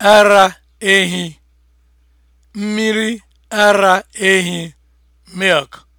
ara ehi mmiri ara ehi milk